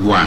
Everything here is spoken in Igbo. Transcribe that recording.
agwa